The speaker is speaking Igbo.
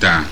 ta